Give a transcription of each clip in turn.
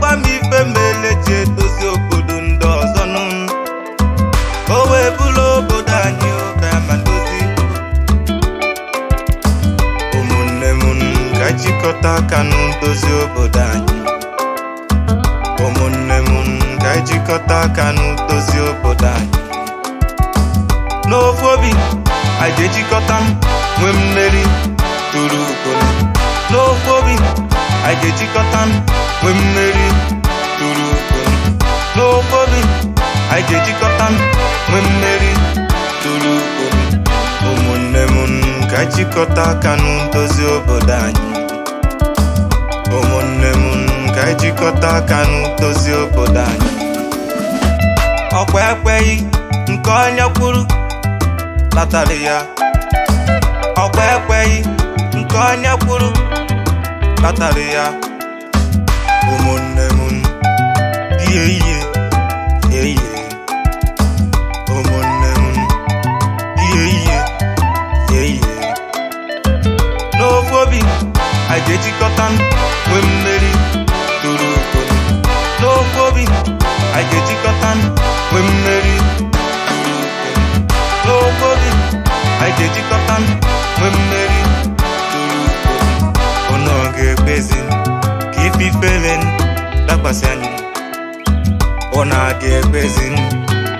gwa m ife mele ji edozi obodo ndị ọzọ nụ o wee bụrụ obodo anyị ụka ma dozi ụmụnne m ka jikọta aka nụ dozi obodo anyị ụmụnne m ka jikọta aka nụ dozi obodo anyị n'ofu obi anyị ejikọta m nwee mmeri tụrụ ugo anyị ga-ejikọta nwee mmeri tụrụ okporo n'ofe obi anyị ga-ejikọta nwee mmeri tụrụ okporo ụmụnne m ka anyị jikọta aka n'ndozi obodo anyị ụmụnne m ka anyị jikọta aka n'ndozi obodo anyị ọkwa ekweghị nke onye kwuru latara ya ya ụmụnne m ihe ihe ihe ụmụnne m ihe ihe ihe n'ofu obi anyị ga-ejikọta na-agbasi anyị ọ na-aga ekwezi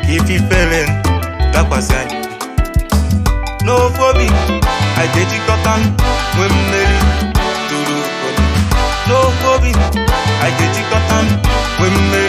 ka ififere dakwasị anyị n'ofe obi anyị ga-ejikọta nwee mmeri tụrụ n'ofe obi anyi